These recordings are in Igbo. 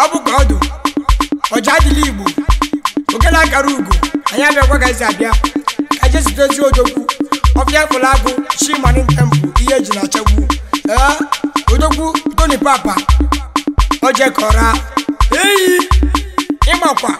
ọ bụkwa ọdụ ọja adịla igbo oge na-akara ugo anyị abịakwaghịzi abịa ka jesitezi odogwu ọbịa fụla agụ chimanụ tempụ ihe eji na-achagbu ee odogwu toni papa ojekọra eyi ịmakwa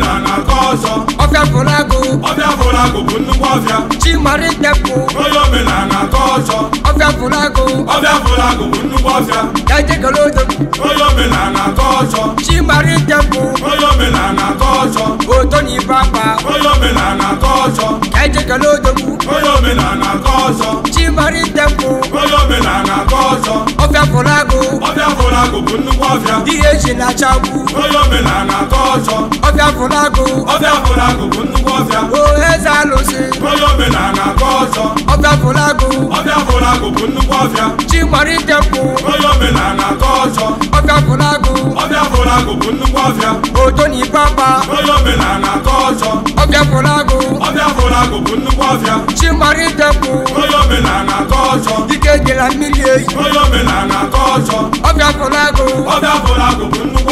na na-akọ ọzọ ọbịa fụlagụ ọbịa fụlagụ bụ nnukwu ọbịa chimarịtepụ onye na akọ ọzọ ọbịa ọbịa bụ nnukwu ọbịa ejegolodo onye na akọ ọzọ chimarịtepụ onye na akọ ọzọ otonibeapa onye omenala akọ ọzọ ejegolodo onye akọ ọzọ onye akọ ọzọ ọbịa ọbịa bụ nnukwu ọbịa e na ọbịa fụlagụ ọbịa agụ bụ nnukwu ọbịa o eze alụsị onye omenala akọ ọzọ ọbịa fụlagụ ọbịa fụlagụ bụ nnukwu ọbịa chi kwụ onye ọzọ ọbịa bụ nnukwu ọbịa oto na onye akọ ọzọ ọbịa fụlagụ ọbịa fụlagụ bụ nnukwu ọbịa chi kwụ onye ọzọ mmiri eyi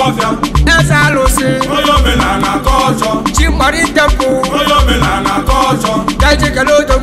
onye eze alụsị onye omenala ka ọjọọ chi mgbari ntepụ onye omenala ka ọjọọ ka eji kele ụjọ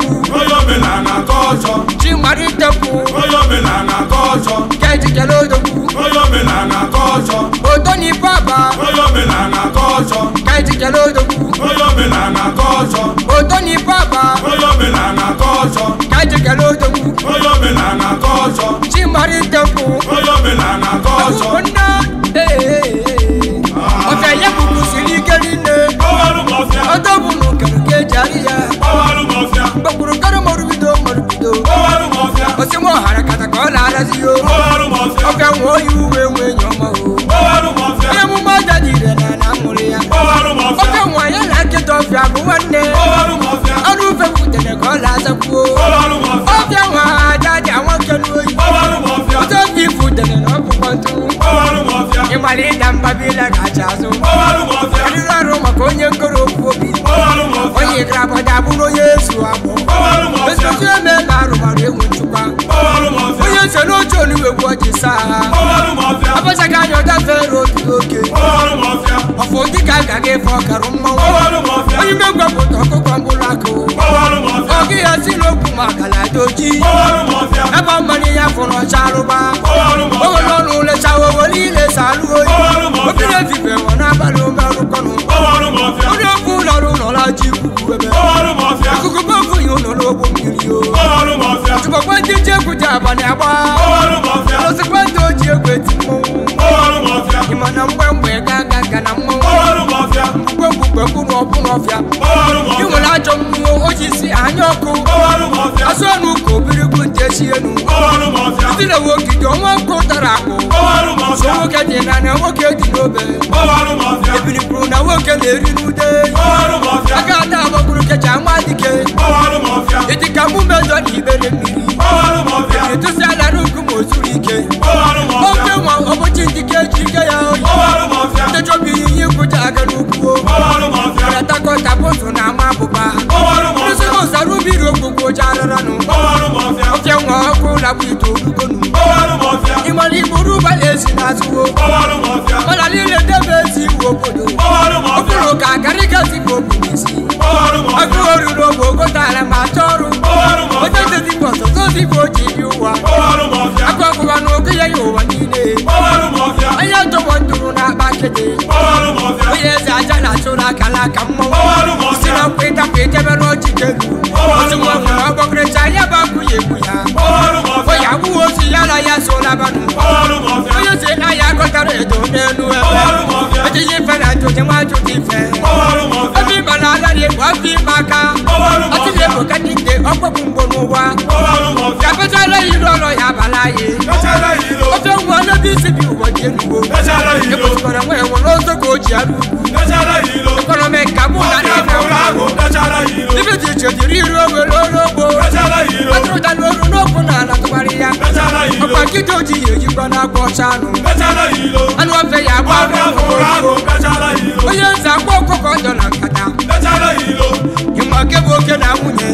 ye fɔ karuma wo oyin bɛ gbɛ kotɔ ko kɔnbula ko ogi yasi lo kuma kala doji ne ba mali ya kɔnɔ saruba o lɔnu le sawo woli le salu oyi o fi le fi fɛ wɔna balo mɛru kɔnɔ o de kun lɔru nɔla ji kuku bɛbɛ akuku bɛ fun yi o nɔlɔ o bo miiri o tubakɔ jɛjɛ kuta bani a bɔ. isi anya ọkụ asọnụ ka obirikwu nje si enu itile wogide ọnwa ọkụ tara akpụ so nwoke dị na na nwoke dị n'obe ebirikwuru na nwoke na-eri n'ude aka ada agbakwuru kecha ama dike ịdịka mụ mejọ na ibere mmiri etụsi ala n'ugwu ma o zuru ike ofe nwa ọbụchi ndike ji ike ya oyi ndị chọbụ ihe ihe kwụcha aga n'ugwu karatakọta bụtụ na ranu bọwọlu mọfia o jẹ ŋɔ ko labu ito dukonu bọwọlu mọfia imọli muru bale sina suwo bọwọlu mọfia mọlali le debe si wo kodo bọwọlu mọfia ofuro ka gari ka si ko kuli si bọwọlu mọfia ofuro do wo ko taara ma tɔɔru bọwọlu mọfia o ti bɔsɔ tó ti fo ti yi wa bọwọlu mọfia akɔ kuba n'o kiyɛ yi o wa ni ne bọwọlu mọfia an y'a tɔgɔ duuru n'a ba kete bọwọlu mọfia o yɛ kala ka mɔ bọwọlu mọfia sinɛ peta pete bɛ abanu. Oyo se aya kọjara ètò mẹ́nu ẹ̀. Ojú yìí fẹ́rẹ̀ tó ti wá tó ti fẹ́. Ẹbí bàlá aláde wá fi máa ká. Ọtí lè mú kẹ́kíkẹ́ ọgbẹ́ gbogbo wa. Yàtọ̀tọ̀ lẹ́yìn lọ́rọ̀ yàbàlá yìí. Ó tó wọ lóbi síbi ìwọ̀ jẹ́ nuwo. Ipò tí kọ̀ọ̀rọ̀ wọ̀ ẹ̀wọ̀n ló sókò jì àlù. Ìkọ̀rọ̀ mẹ́ka mú lálẹ́ ìfẹ́ wọn. Ibi tí ìṣèjì rí irú owó lóró bo. Ó tó dá lóru lókun náà látọ̀ okidoji oyigbo na-akpọcha anụ anụ ofe ya agba onye nza akpọ ọkụkọ ọjọ na nkata ịma nke bụ oke na nwunye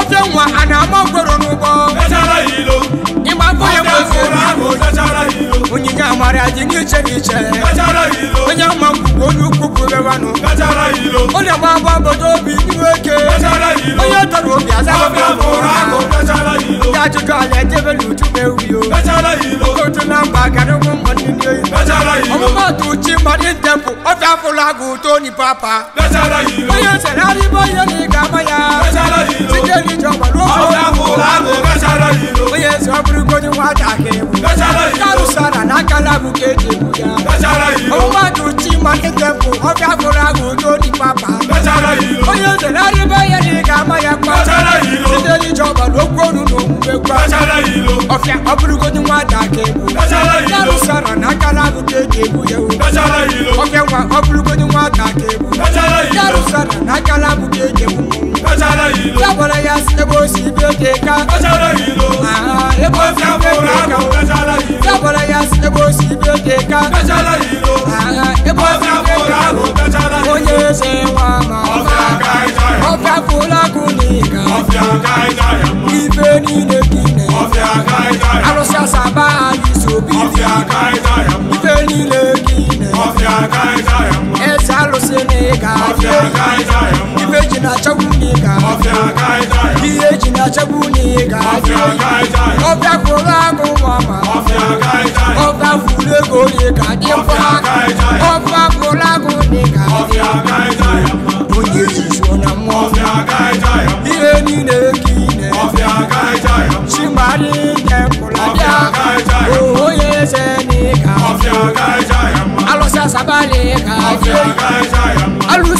ofe nwa a na-ama okporo n'ụgbọ ịgba mbọ ya onye amara dị n'iche n'iche onye ama go to Chimarin temple, of Afolago, Tony Papa. Bóyá Sẹ̀lárí bóyá ní Gamaya. Síjẹ́ ní ìjọba ló fọ́. Bóyá Sọ́bùrúkọ ni wọ́n dàgé. Kárùsàrà lákàlà bùkẹ́ dè bùyà. Òun wá to Chimarin temple, of Afolago, Tony Papa. Bóyá Sẹ̀lárí bóyá ní Gamaya pa. Síjẹ́ ní ìjọba ló gbóòórùn lòún gbé pa. Ọ̀fẹ́ ọ̀bùrúkọ ni wọ́n dàgé. Kárùsàrà lákàlà ka eji egbu ya o oke nwa ọ bụrụgodị nwata ka egbu yarụsara na akala bụ ka eji egbu mmọnwụ ya gwara ya si ebe o si ibe dị ka ya gwara ya si ebe o si ibe dị ka ifeji na-achagbu n'ịga iheji na-achagbu n'ịga ọbịa kwụrụ agụ mama ọbịa kwụrụ ego n'ịga dịkwa ọbịa kwụrụ agụ n'ịga onye zuzu na mmụọ ihe niile ka ine chimari nye mkpụrụ abịa ohoye eze n'ịga alụsị asabali ka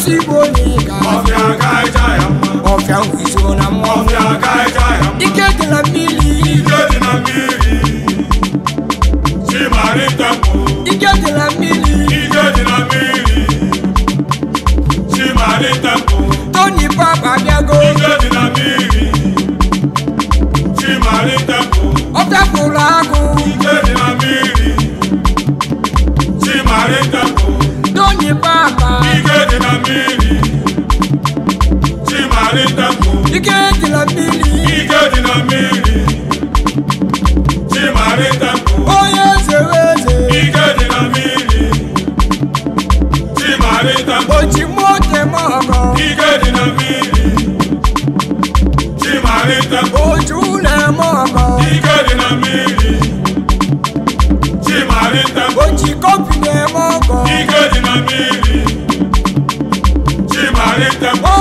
ezigbo n'ịga ọfịa ka ịja ya mma ọfịa kwụsịrị na mma ọfịa ka ịja ya mma ike dị na mmiri ike dị na mmiri chimari tempo ike dị na mmiri ike dị na mmiri chimari tempo tony papa bịago ike dị na mmiri chimari tempo ọ tapụrụ agụ ike dị na mmiri chimari tempo na mmiri Chimarịta mụ ike dị na mmiri ike dị na mmiri Chimarịta mụ onye eze eze ike dị na mmiri Chimarịta mụ ochimoke mọgọ ike dị na mmiri Chimarịta mụ oju na mọgọ ike dị na mmiri Chimarịta mụ oji kọpị na-eme ọgọ ike dị ọdẹkọ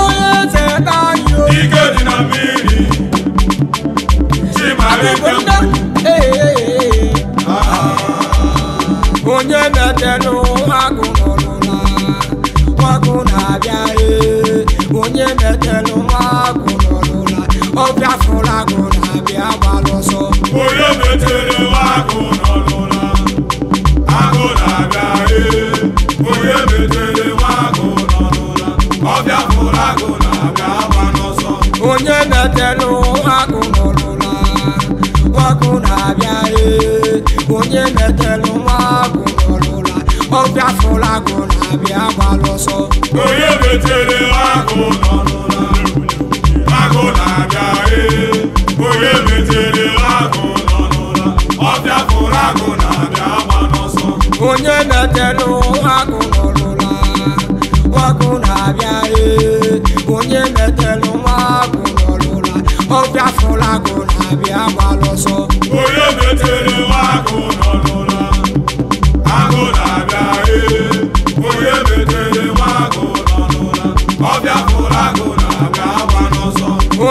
ike dị na mmiri chimarịta onye na-etenụ agụ n'ọlụla agụ na-abịa onye na-etenụ agụ n'ọlụla ọbịa fụrụ agụ na-abịa gbara ọsọ onye na-etere agụ n'ọlụla agụ na-abịa onye na telu wakuna olula wakuna abiare onye metelu wakuna olula ọbịa fụlagụ na abịa gbalụsọ onye metere wakuna olula wakuna abiare onye metere wakuna olula ọbịa fụlagụ na abịa gbalụsọ onye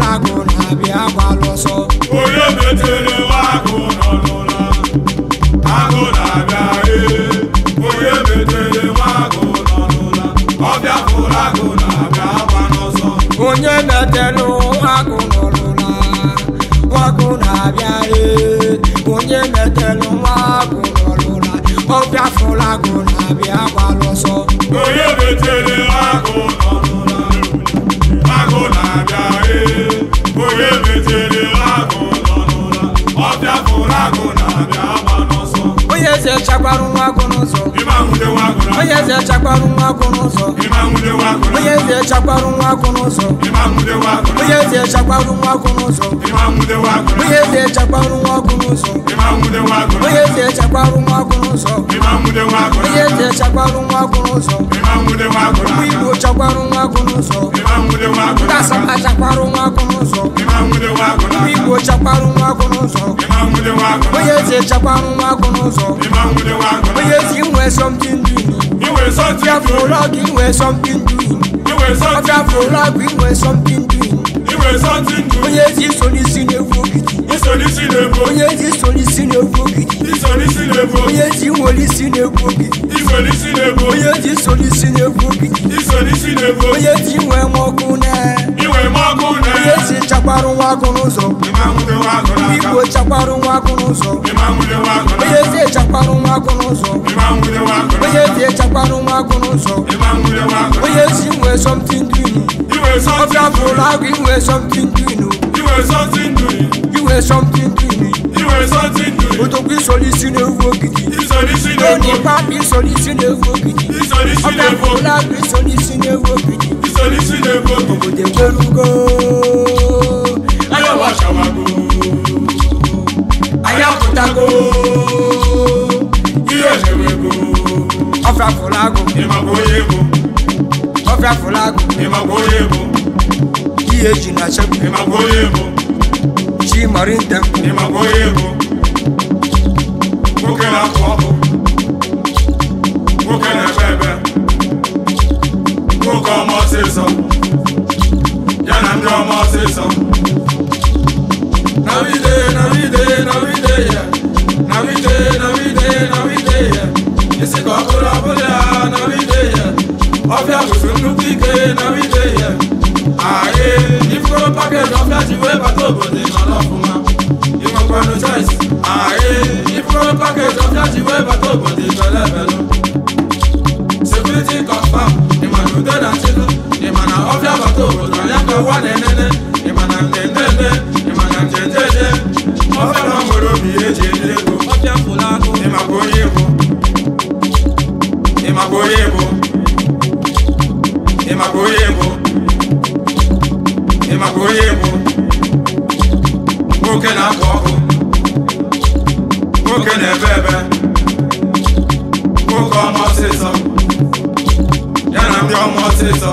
agụ na abịa agbalụsọ onye metere agụ nọ n'ụra agụ na-abịa ee onye metere agụ nọ n'ụra Jaguarão, Agonoso onye eze chakwarụ nwa akwụ n'ụzọ onye eze chakwarụ nwa n'ụzọ onye eze chakwarụ nwa akwụ n'ụzọ onye eze chakwarụ nwa akwụ n'ụzọ onye eze chakwarụ nwa akwụ n'ụzọ onye eze chakwarụ nwa akwụ n'ụzọ ụmụ igbo nwa n'ụzọ ndị asaba nwa n'ụzọ ụmụ igbo nwa n'ụzọ onye eze nwa n'ụzọ onye something doing. You were something doing. you were something doing. You were something doing. you were something doing onye ji solisi na-ebu ogidi onye ji solisi na-ebu ogidi onye ji nwolisi na-ebu ogidi onye ji solisi na-ebu ogidi onye ji nwee m ọkụ na onye ji chakwarụ nwa agụ n'ụzọ igbo chakwarụ nwa agụ n'ụzọ onye ji echakwarụ nwa agụ n'ụzọ onye ji echakwarụ nwa agụ n'ụzọ onye ji nwee somtin dini were something doing. Obiafra, you were something doing. You were something doing. You were something me. doing. You were something doing. Otokwi solution ewu ogidi. Isolution ewu ogidi. Onipa bi solution ewu ogidi. Isolution ewu ogidi. Obiafra bi solution ewu ogidi. Isolution ewu ogidi. Obodo ekerugo. Ayawa shawago. Ayaputago. Iye ṣewego. Ọfra fọlago. Ìmàgbọ́ yego. ọbịa fụlagụ ihe ji na chepụ chi marinta wa nẹ́nẹ́nẹ́ ìmọ̀nà tẹ̀tẹ̀tẹ̀ ìmọ̀nà tẹ̀tẹ̀tẹ̀ wọ́n fẹ́ràn mọ̀rọ̀ bí èjì ìdílébò ọ̀fẹ́ fúlànù ìmàgbóyè bò ìmàgbóyè bò ìmàgbóyè bò ìmàgbóyè bò nwoke na-akọ ọkụ nwoke na-ebe ebe nwoke ọma ọsịsọ ya na ndị ọma ọsịsọ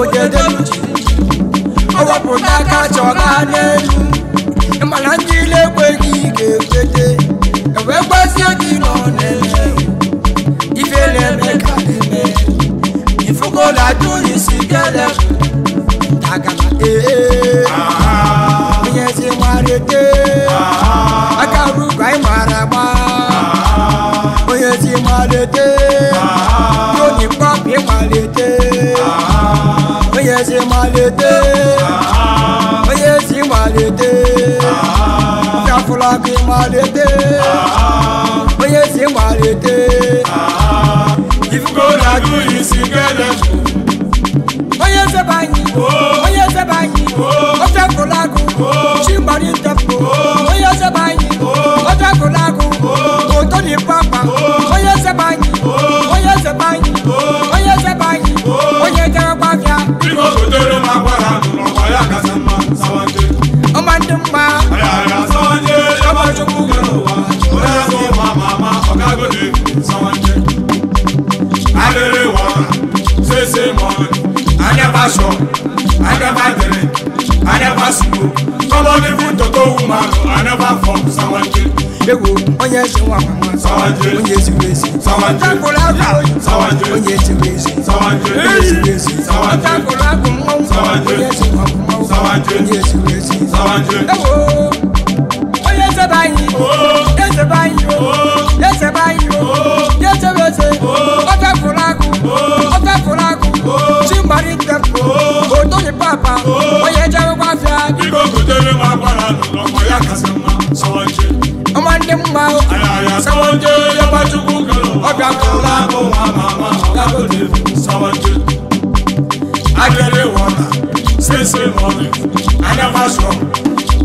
obodo eluji ọ wepụta aka chọga n'elu mana ndị ile ekweghị ga-ewete ewee gbazie gị nọ n'ele ife na-eme ka eme ifugola dụghị si kele agana ee onye si marete aka rugo anyị mara agba onye si marete malete oyesi malete jafulaki malete oyesi malete ifukolaju isikele. oyese banyi oyese banyi ojafulaku. Somebody put to go woman, I never form someone chill. Ewo, onye ṣe wa mama. Sawanjiri. Onye ṣe wesi. Sawanjiri. Ọ̀tàkùnrin àgbà. Sawanjiri. Onye ṣe wesi. Sawanjiri. Onye ṣe wesi. Sawanjiri. Ọ̀tàkùnrin àgbà mọ́. Sawanjiri. Onye ṣe wa mama. Sawanjiri. Onye ṣe wesi. Sawanjiri. Ewo, onye ṣe báyìí. Ooo. Yẹ ṣe báyìí o. Yẹ ṣe báyìí o. Yẹ ṣe wesi. Ọ̀tàkùnrin àgbà. Ọ̀tàkùnrin àgbà. Chimbari tẹ̀. Ooo. Odo ni papa. Oye ibe butere m akwara n'ụlọ ma ya kasị mma I ọma ndị mma ayaya sọwọnje yaba chukwu kere ọbịa kọla bụ nwa ma ama ọgagote sọwọnje akere wọta sese mọlị anaba sọ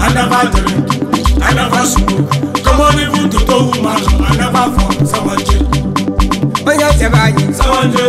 anaba dere anaba sọ kọmọdé bụ tuto wu ma anaba fọ sọwọnje jẹ báyìí. sanjo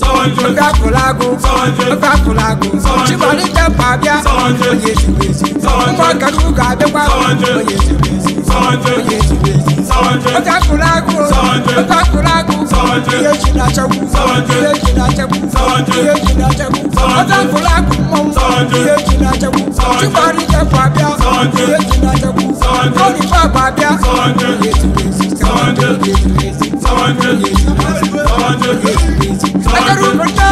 sanjo ó fẹ́ kulagun sanjo ó fẹ́ kulagun ṣùgbọ́n ní jẹ́ pàbíà sanjo oyè ṣùgbèsì sanjo ó fọ́ kẹdùkà àbíkpá sanjo oyè ṣùgbèsì sanjo oyè ṣùgbèsì sanjo ó fẹ́ kulagun sanjo ó fẹ́ kulagun sanjo oyè ṣùgbàṣẹ́kù sanjo oyè ṣùgbàṣẹ́kù sanjo oyè ṣùgbàṣẹ́kù sanjo ó fẹ́ kulagun mọ́ sanjo oyè ṣùgbàṣẹ́kù ṣùgbọ́n ní jẹ́ pàbíà sanjo oyè ṣùgbàṣẹ́kù sanjo ó ní fọ́ pàbíà sanjo oyè ṣùgbèsì sanjo oyè ṣùgbèsì. Come on, Jogi. Come on, Jogi. Come on, Jogi.